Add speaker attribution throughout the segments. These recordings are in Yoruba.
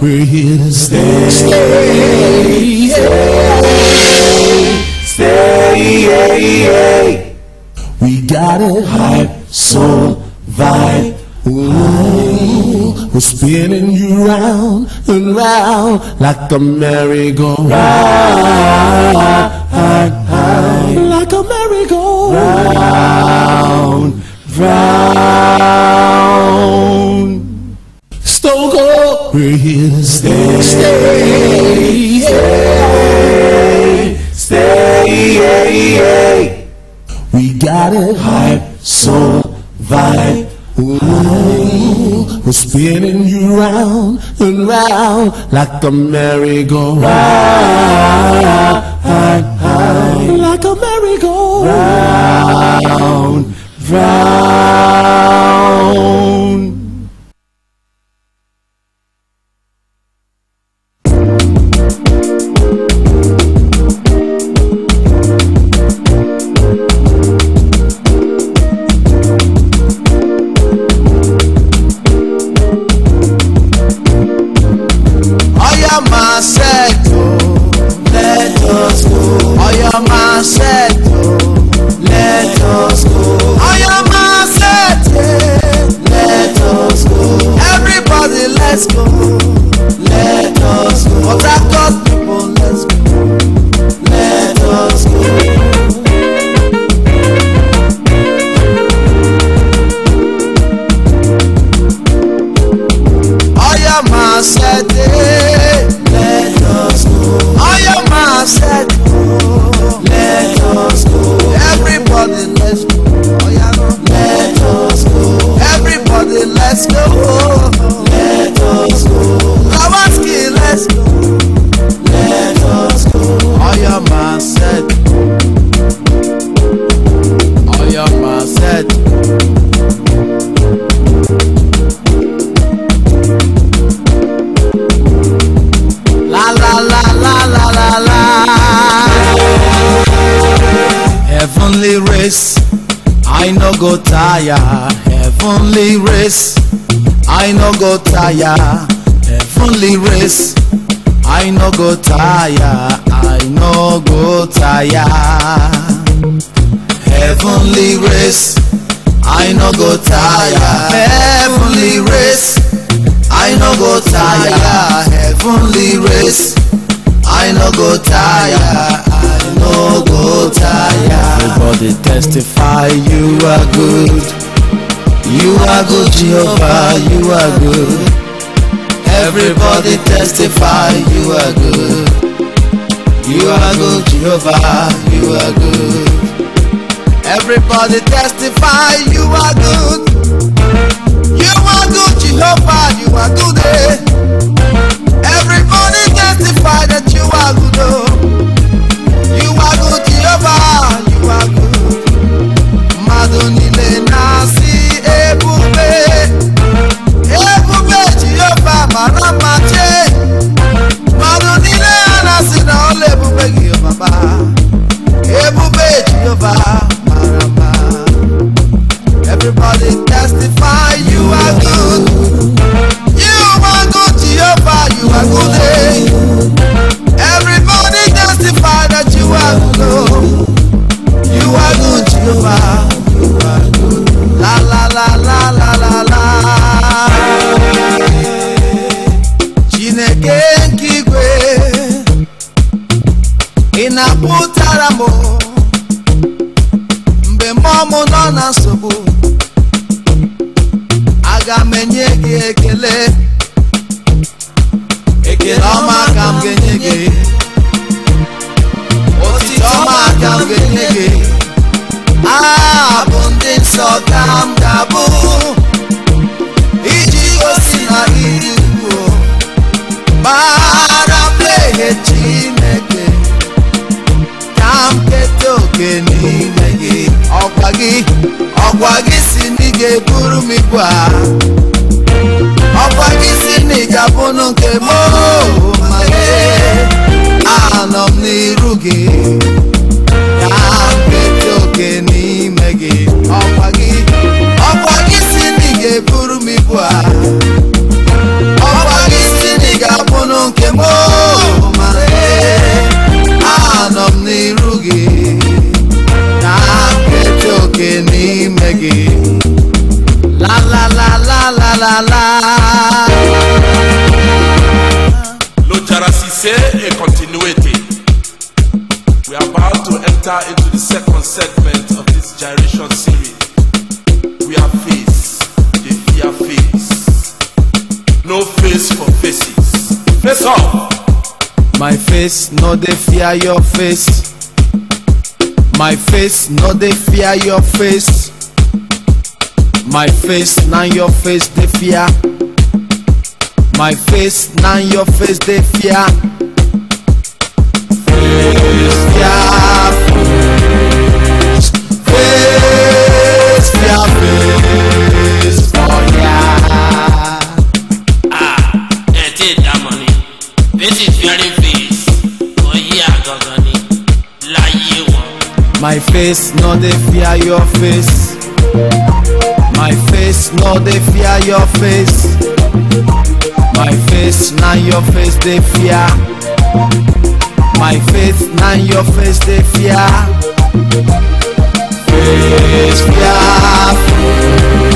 Speaker 1: We're here to stay. Stay. Stay. Stay. stay. We got it. hype, soul, vibe. Ooh, we're spinning you round and round like a merry-go-round. Like a merry-go-round. Round. round. Stoke to stay, stay, stay, stay. We got it. Hype, soul, vibe. Ooh, we're spinning you round and round like a merry-go-round. Like a merry-go-round, round. round. tire heavenly race i no go tire i no go tire heavenly race i no go tire heavenly race i no go tire heavenly race i no go tire i no go tire. everybody testify you are good you are good jehovah you are good. Everybody testify you are good. You are good, Jehovah, you are good. Everybody testify you are good. You are good, Jehovah, you are good. Eh? Everybody testify that you face no they fear your face my face no they fear your face my face na your face they fear my face na your face they fear face fear. my face no they fear your face my face no they fear your face my face na your face they fear my face na your face they fear face fearful.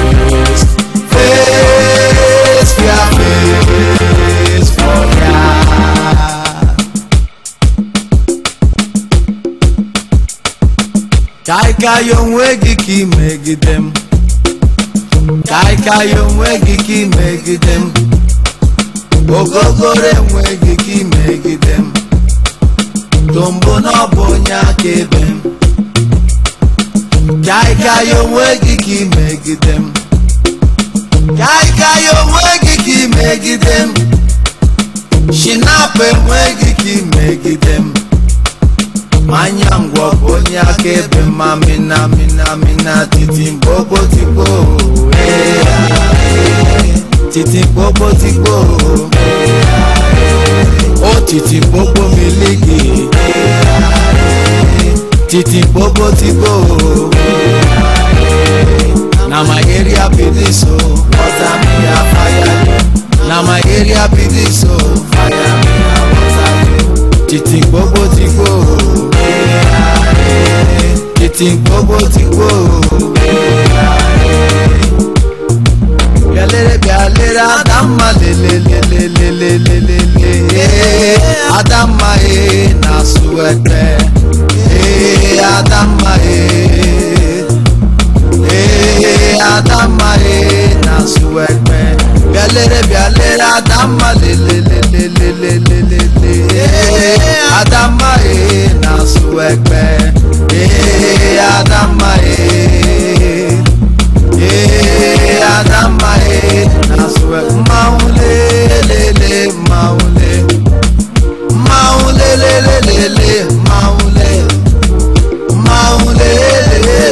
Speaker 1: kaịkaị onwe gị ka ị megide m kaịkaị onwe gị ka ị megide m ogogoro enwe gị megide m tombo na ọ bụ onye akaebe m kaịkaị onwe gị ka ị megide m kaịkaị onwe gị ka ị megide m shinapụ enwe gị megide m manyangwa akonya kebe mamina mina mina titi mpopo tiko titi mpopo tiko o titi mpopo miliki titi mpopo tiko na maheri ya be this o water na maheri ya be fayali títí gbogbo ti gbó títí gbogbo ti gbó. Yalere bi alere adama lelelelelelelele adama e na suwete e eh, adama e e adama e na suwete yalere bi alere adama lelele. Adama e na su ekpe e eh, Adama e eh, na su maule le maule maule le le maule maule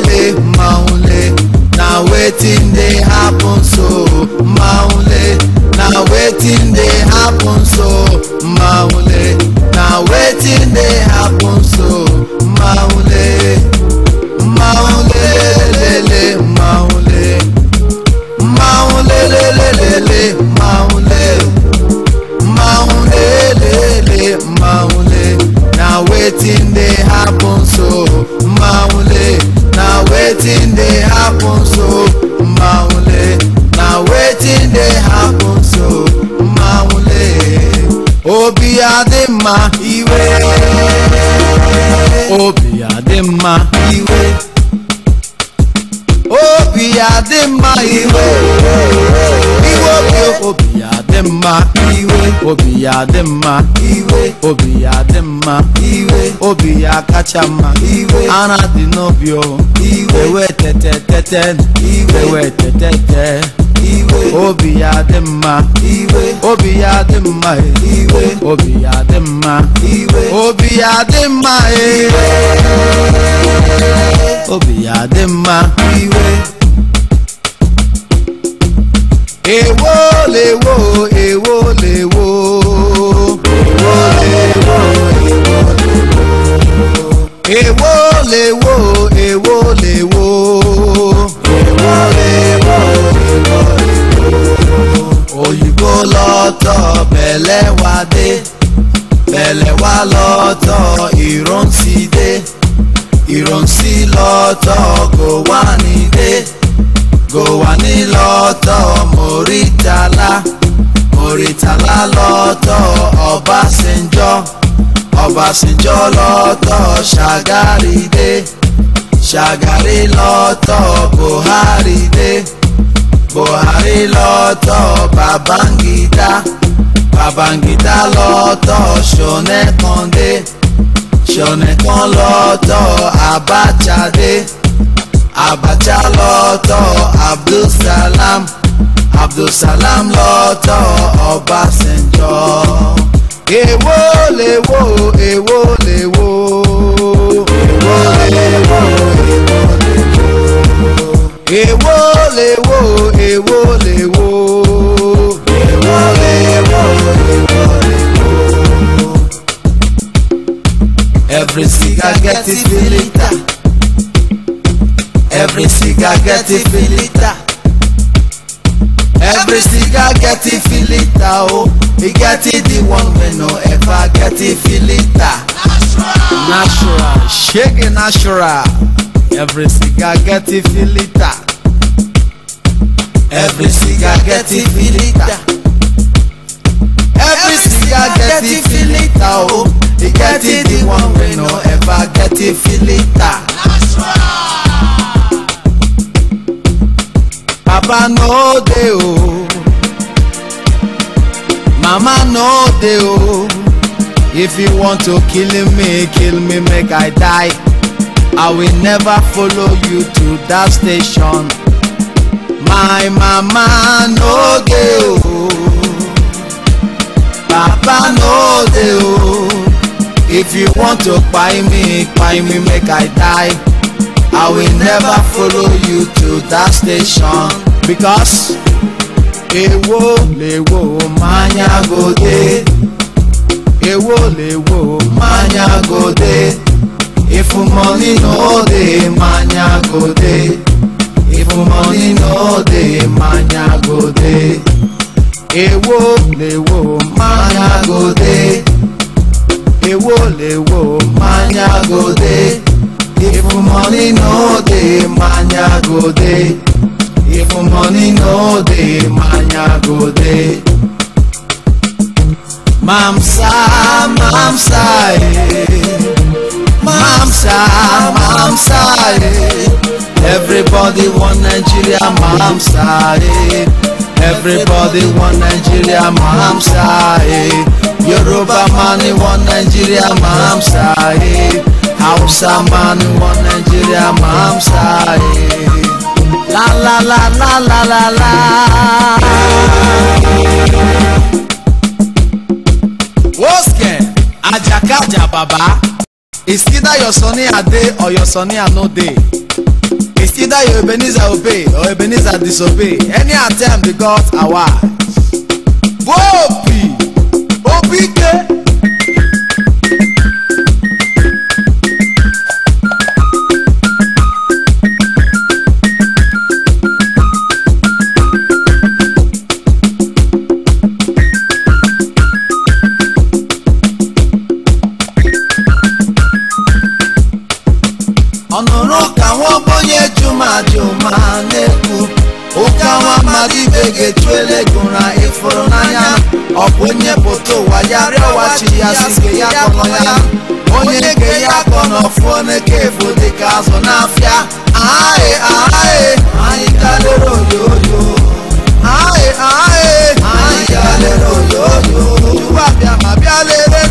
Speaker 1: le maule na wetin dey happen so maule na wetin dey happen so maule anything may happen obi ya adị mma iwe obi ya adị mma iwe obi ya kacha mma iwe ara dị n'obi o iwe ewe tete tete iwe ewe tete tete obi ya dị mma obi ya dị mma e. obi ya dị mma obi ya dị mma e. obi ya dị mma ewo lewo pẹ̀lẹ́ wá dé pẹ̀lẹ́ wá lọ́tọ̀ ìrántí dé ìrántí lọ́tọ̀ kò wá ní dé kò wá ní lọ́tọ̀ mòrítàlá mòrítàlá lọ́tọ̀ ọbásanjọ́ ọbásanjọ́ lọ́tọ̀ ṣàgárì dé ṣàgárì lọ́tọ̀ buhari dé buhari lọ́tọ̀ babangida. Babangida lọ́tọ̀ ṣọ̀nẹ́ kan dé ṣọ̀nẹ́ kan lọ́tọ̀ Abacha dé Abacha lọ́tọ̀ Abdulsalam Abdulsalam lọ́tọ̀ Ọbásanjọ́ èwo lèwo èwo lèwo èwo lèwo èwo lèwo èwo lèwo. Every cigar get it filita. Every cigar get it feel Every cigar get oh. it feel oh E get it the one we no ever get it feel it Natural Shake it natural Every cigar get it feel Every cigar get it feel Get getting filita o e it, the one wey no ever get getting filita. Papa no dey o, mama no dey o, if you want to kill me kill me make I die, I will never follow you to that station. My mama no dey o. Baba no dey o. If you want to kpai me, kpai me make I die. I will never follow you to that station because ewo lewo mmanya go dey. Ewo lewo mmanya go dey. If money no dey, mmanya go dey. If money no dey, mmanya go dey èwo lèwo manya gode èwo lèwo manya gode if money no dey manya gode if money no dey manya gode. Mamsa, mamsa, eh. Mamsa, mamsa, eh. Everybody want Nigeria, mamsa, eh. Everybody want Nigeria Mahamsa eh. Yoruba man want Nigeria Mahamsa eh. Hausa man want Nigeria Mahamsa eh. La la la la la la la. Woske Ajakaja Baba. It's either your Sunny day or your Sunny day? It's either you Ebenezer obey or Ebenezer disobey. Any attempt the gods are wise. Whoa, Obi, Obi, ibe ga-etu elegura ịfụrụ n'anya ọ bụ onye pụta ụwa ya rịọwa chi ya sike ya kpọrọ ya onye ga ya akọ n'ọfụ n'eke efu dịka azụ n'afịa ahaghị ahaghị anyị kalere oyoyo ahaghị ahaghị anyị kalere oyoyo tupu abịa ma bịa lere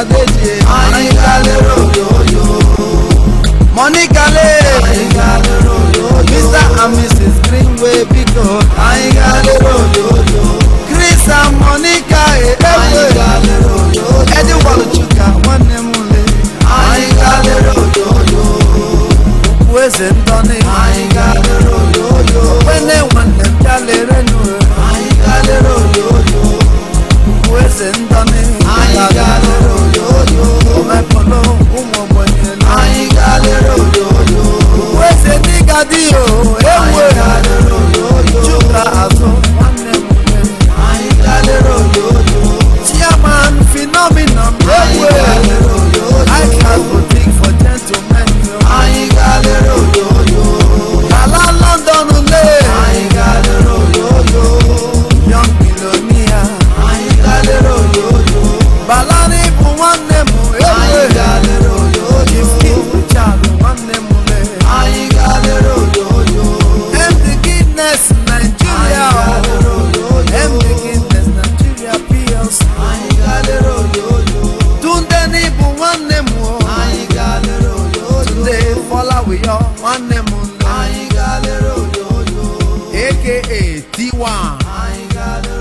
Speaker 1: Adeje Àyìnlá. I got a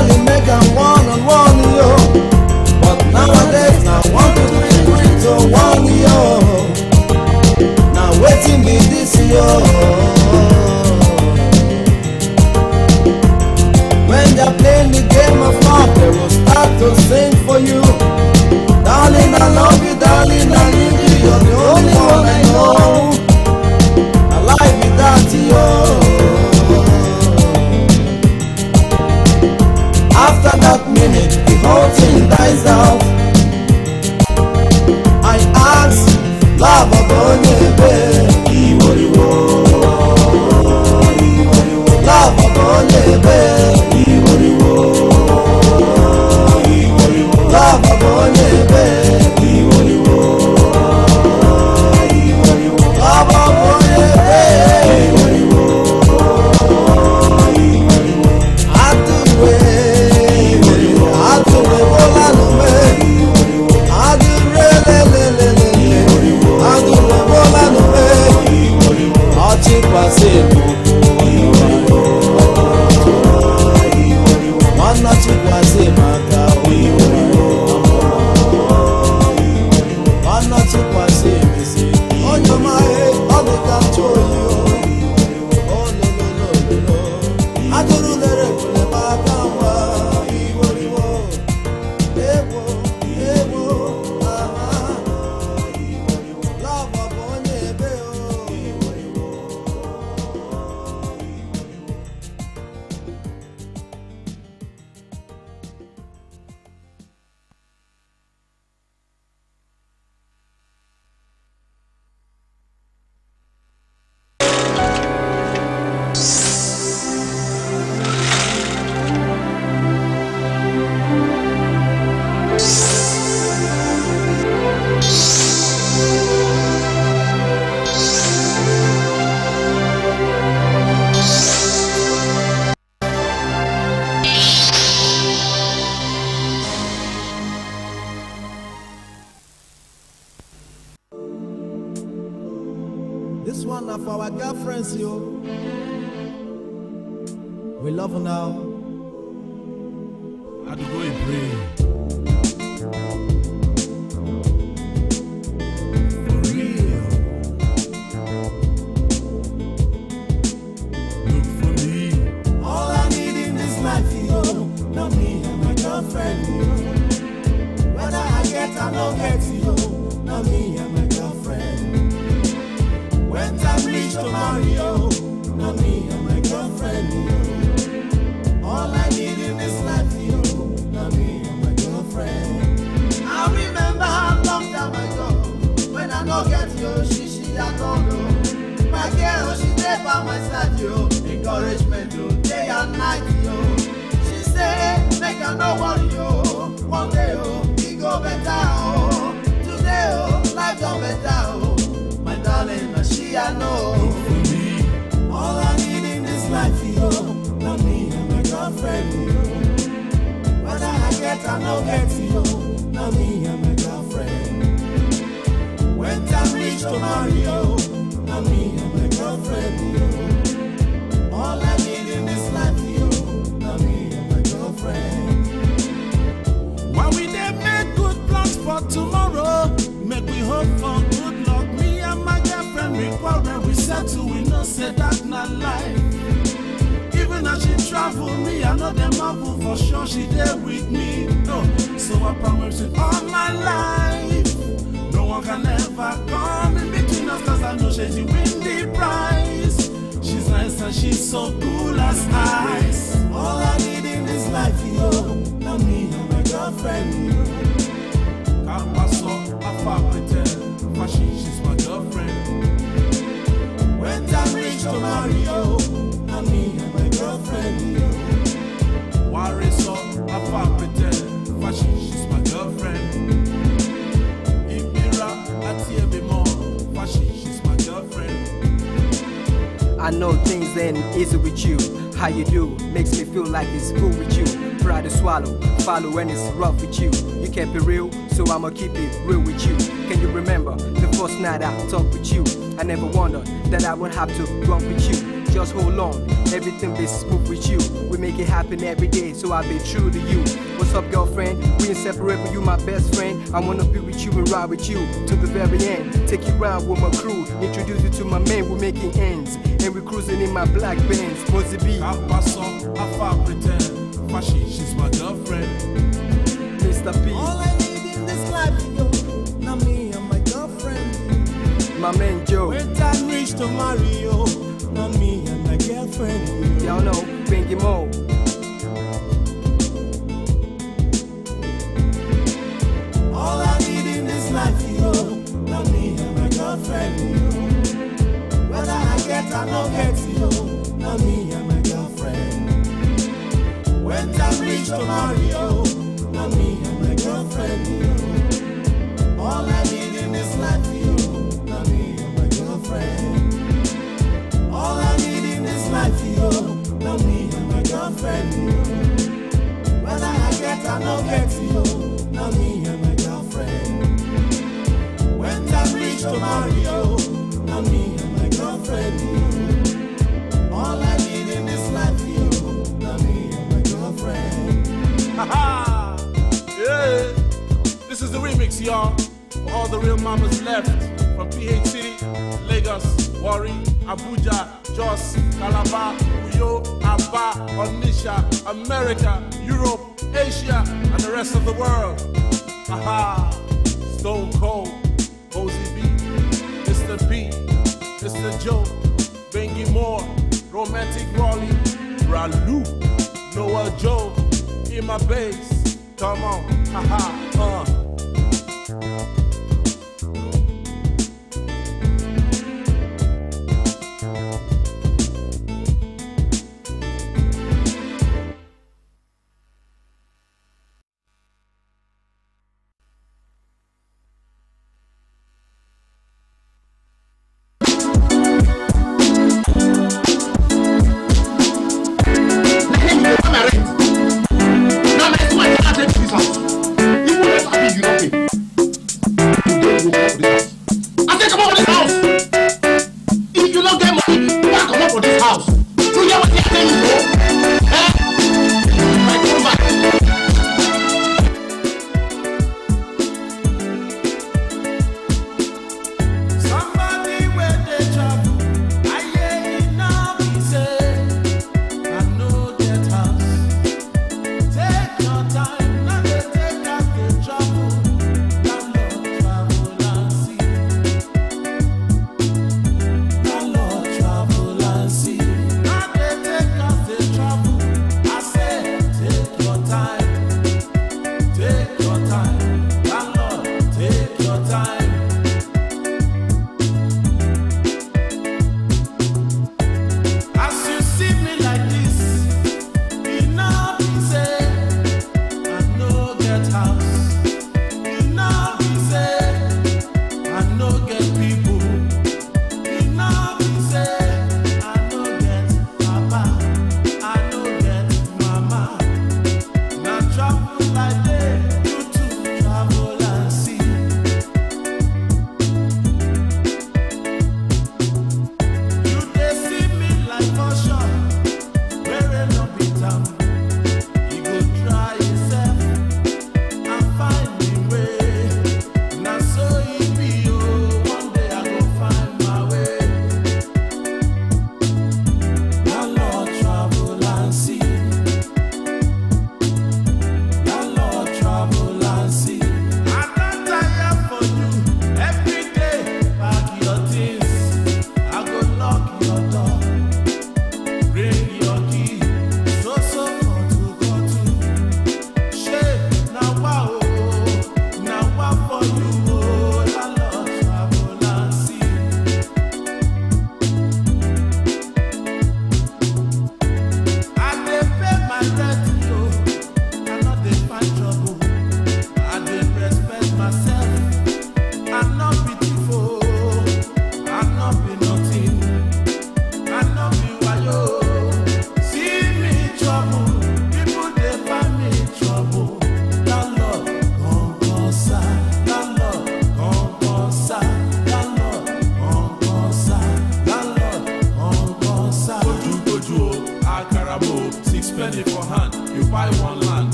Speaker 1: only make I one. no get you, now me and my girlfriend. When time reach to marry now me and my girlfriend. All I need in this life you, now me and my girlfriend. While we there make good plans for tomorrow, make we hope for good luck. Me and my girlfriend, we quarrel, we settle, we know say that not life she travel me, I know them marvel for sure she there with me. No, so I promise it all my life. No one can ever come in between us, cause I know she's win the prize. She's nice and she's so cool as ice. All I need in this life, yo, not me and my girlfriend. I know things ain't easy with you. How you do makes me feel like it's cool with you. Try to swallow, follow when it's rough with you. You can't be real, so I'ma keep it real with you. Can you remember the first night I talked with you? I never wondered that I would have to run with you just hold on. Everything be smooth with you. We make it happen every day, so I'll be true to you. What's up, girlfriend? We ain't but you my best friend. I wanna be with you and ride with you to the very end. Take you round with my crew, introduce you to my men, we're making ends. And we're cruising in my black Benz, be? I pass up, I far pretend. Fashi, she's my girlfriend. Mr. B, All I need in this life, yo, not me and my girlfriend. My man Joe. When time reach to Mario on me and my girlfriend. Y'all know, Pinky Mo. All I need in this life is you, not me and my girlfriend. You. Whether I get or not get you, not me and my girlfriend. When time reach to marry you, not me and my girlfriend. You. know me and my girlfriend. Whether I get or no get you, now me and my girlfriend. When I reach to Mario. you, now me and my girlfriend. All I need in this life you, now me and my girlfriend. Haha! yeah! This is the remix, y'all. All the real mamas left from PH City, Lagos, Warri, Abuja, Jos, Calabar, Tokyo, Aba, Onisha, America, Europe, Asia, and the rest of the world. Aha! Stone Cold, Posey B, Mr. B, Mr. Joe, Bengi Moore, Romantic Raleigh, Ralu, Noah Joe, Ima Bass, come on, haha, uh.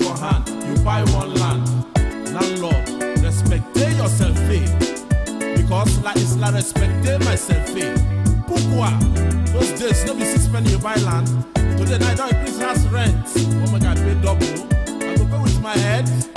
Speaker 1: money for hand, you buy one land. Landlord, respect yourself, eh? Because like it's like respect myself, eh? Pukwa, Those days, no be six penny you buy land. Today, I don't increase house rent. Oh my god, pay double. I go pay with my head.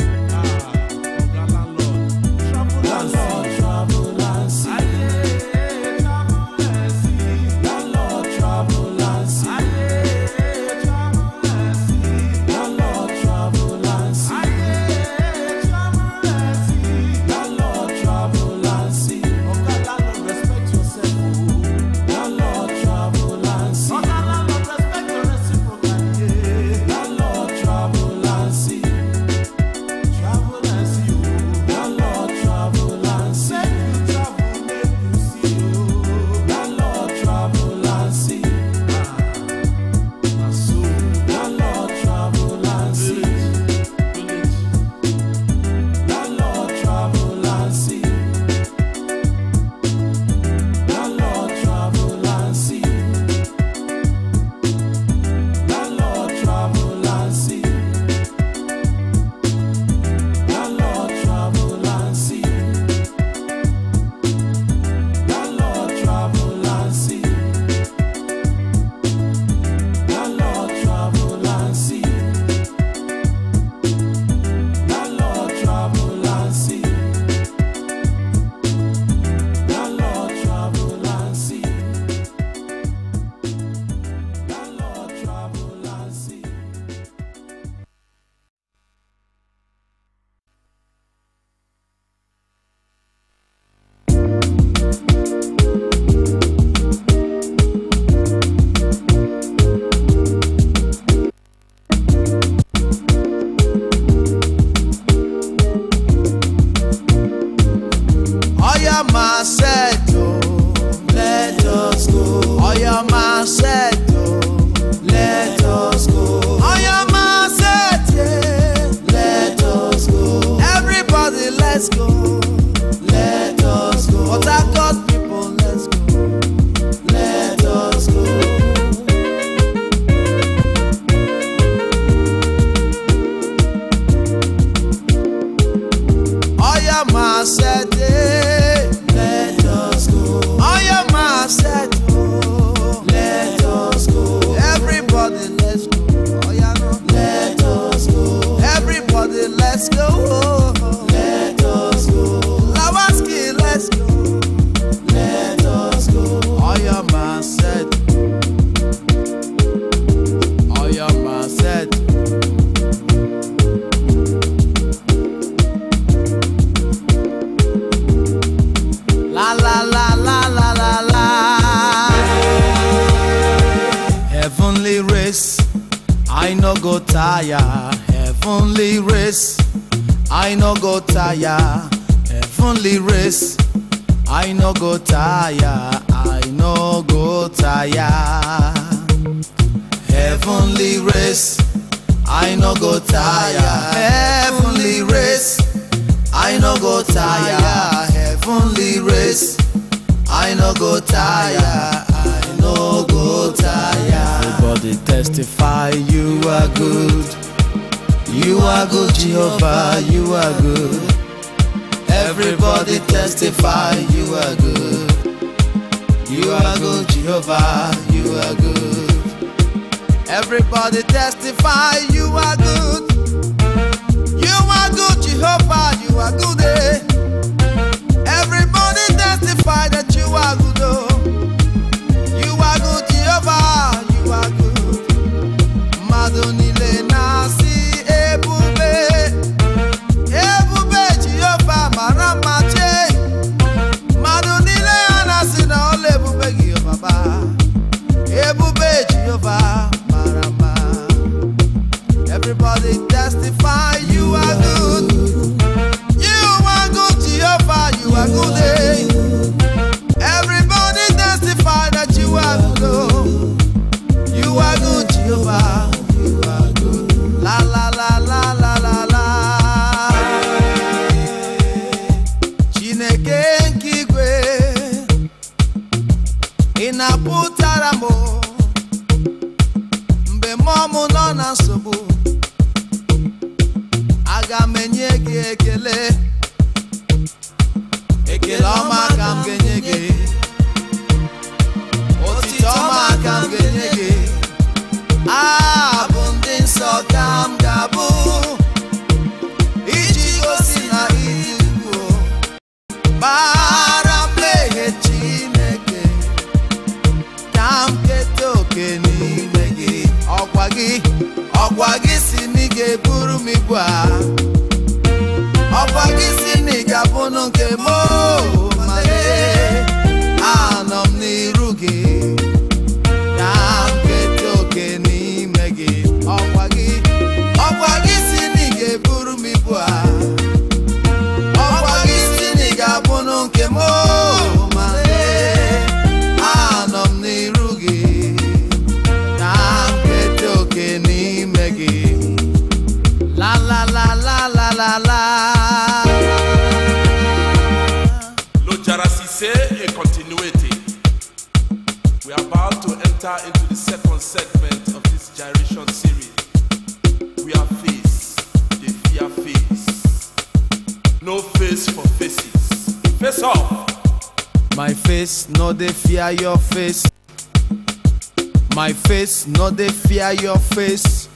Speaker 1: face no they fear your face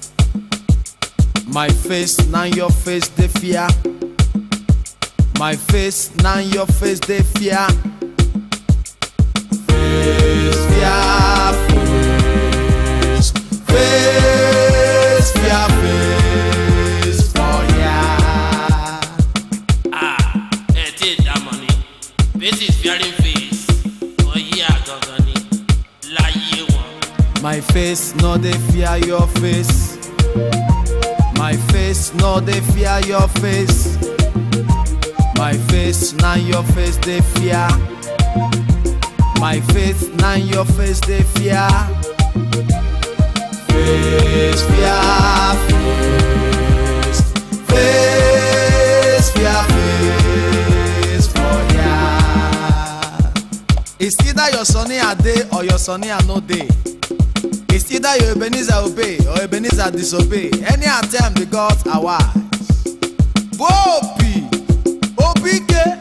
Speaker 1: my face na your face They fear my face na your face They fear. Face fearful face. face no dey fear your face my face no dey fear your face my face na your face dey fear my face na your face dey fear face fear face face fear face for ya it's either your sunny a dey or your sunny a no dey. It's either your Ebenezer obey or Ebenezer disobey. Any attempt, the gods are wise. Whoa, P. OPK.